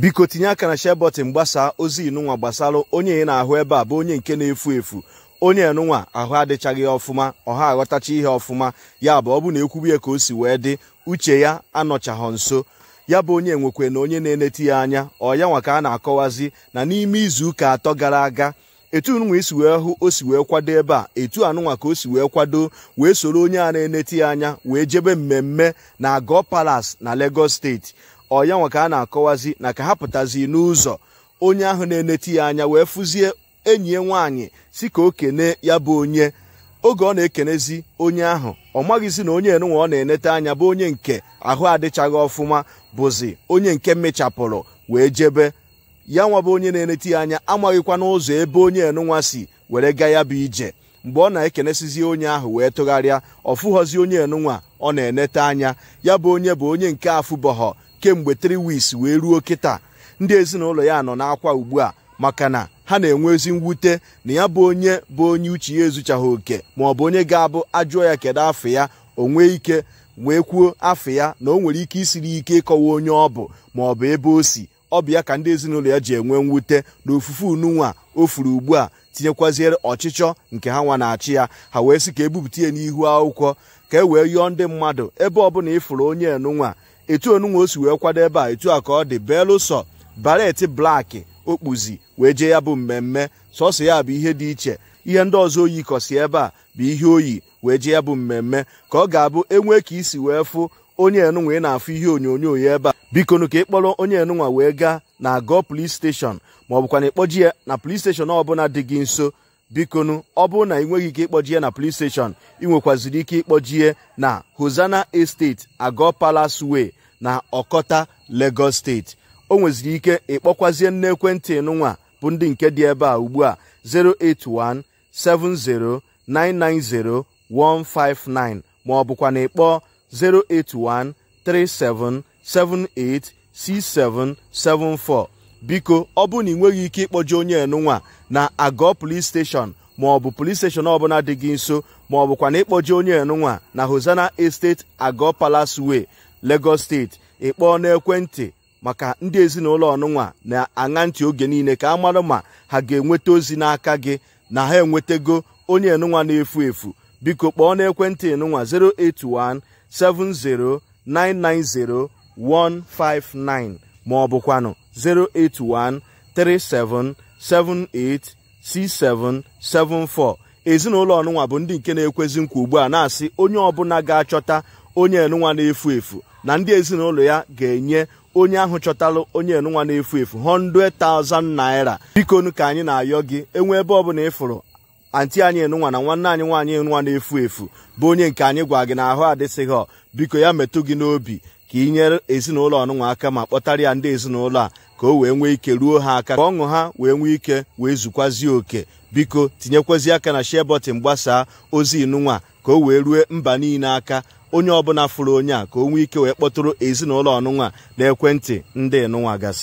biko tinye aka na share button gbasaa ozi inụnwa gbasara onye ị na-ahụ ebe a bụ onye nke na-efu efu onye nụnwa ahụ adịchaghị ọfụma ọha aghọtacha ihe ọfụma ya bụ ọ bụ na ekwubu ya ka o si wee dị uche ya anọchaghọ nso ya bụ onye nwekwe na onye na-eneti ya anya ọ ya nwa ka a na-akọwazi na n'ime izu ụka atọ gara aga etu nụnwa isi wee hụ o si wee kwado ebe a etu anụnwa ka o si wee kwado wee soro onye a na-eneti ya anya wee jebe mmemme na Agọ palas na Lagos steeti ọya nwa ka a na-akọwazi na ka ha pụtazi n'ụzọ onye ahụ na-eneti ya anya wee fụzie enyi ya nwaanyị si ka o kene ya bụ onye oge ọ na-ekenezi onye ahụ ọ maghịzi na onye enunwa ọ na-enete anya bụ onye nke ahụ adịchaghị ọfụma bụzi onye nke mechapụrụ wee jebe ya nwa bụ onye na-enete ya anya amaghịkwa n'ụzọ ebe onye enunwa si were ga ya bụ ije mgbe ọ na-ekenesizi onye ahụ wee tụgharịa ọ fụghọzi onye enunwa ọ na-enete anya ya bụ onye bụ onye nke afụbọghọ kemgbe 3 weeks wee ruo kịta ndị ezinụlọ ya nọ n'akwa ugbu a maka na ha na-enwe ezi mwute na ya bụ onye bụ onye uche ya ezuchaghị oke ma ọ bụ onye ga-abụ ajụọ ya kedu afọ ya o nwee ike wee kwuo afọ ya na o nwere ike isiri ike ịkọwa onye ọ bụ ma ọ bụ ebe o si ọ bụ ya ka ndị ezinụlọ ya ji enwe mwute na ofufe ununwa o furu ugbu a tinyekwaziere ọchịchọ nke ha nwa na-achị ya ha wee sị ka ebupụta ya n'ihu akwụkwọ ka e wee yọọ ndị mmadụ ebe ọbụla ịfụrụ onye enunwa etu onunwe o si wee kwado ebe a etu a ka ọ dị belụsọ baret blaki okpuzi wee jee ya bụ mmemme sọsọ ya bụ ihe dị iche ihe ndị ọzọ oyi kọsi ebe a bụ ihe oyi wee jee ya bụ mmemme ka ọ ga-abụ enwee ka isi wee fụ onye enunwa ị na-afụ ihe onyonyo ya ebe a bikonu ka ịkpọrọ onye enunwa wee gaa na agọ polis steshọn maọbụkwana ọ na ịkpọji ya na polis steshọn ọbụla dị gị nso bikonu ọ bụrụ na ị ike ịkpọjie na police station ị ike ịkpọjie na Hosanna Estate ago Palace Way na Ọkọta Lagos State o nweziri ike ịkpọkwazie nne ekwentị nụnwa bụ ndị nke dị ebe a ugbu a 08170990159 ma ọ bụkwa na ịkpọ 08137786774 biko ọ bụrụ na ị nweghị ike ịkpọje onye enunwa na agụọ polis steshọn maọbụ polis steshọn ọbụla dị gị nso maọbụkwa na ịkpọje onye enunwa na hosana esteti agụọ palace way lagos steeti ịkpọọ n'ekwentị maka ndị ezinụlọ ọnụnwa na-aṅa ntị oge niile ka a ma ha ga-enweta ozi n'aka gị na ha enwetago onye enunwa na-efu efu biko kpọọ n'ekwentị enunwa 081 70 159 ma ọ 08137786774 ezinụlọ ọnụnwa bụ ndị nke na-ekwezi nkwa ugbu a na-asị onye ọbụla ga-achọta onye enụnwa na-efu efu na ndị ezinụlọ ya ga-enye onye ahụ chọtalụ onye enụnwa na-efu efu 100,000 naira bikonu ka anyị na-ayọ gị enwe ebe ọbụla ịfụrụ fụrụ anti anyị enụnwa na nwanne anyị nwaanyị enụnwa na-efu efu bụ onye nke anyị gwa gị na ahụ adịsịghị biko ya metụ gị n'obi ka inye nyere ezinụlọ ọnụnwa aka ma kpọtara ya ndị ezinụlọ a ka o wee nwee ike ruo ha aka ka ọṅụ ha wee nwee ike wee zukwazie oke biko tinyekwezi aka na share gbasaa ozi inụnwa ka o wee rue mba niile aka onye ọbụla fụrụ onye a ka o nwee ike wee kpọtụrụ ezinụlọ ọnụnwa na ekwentị ndị nụnwa gasị